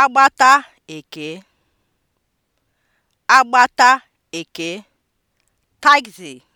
agbata eke agbata eke tagzi.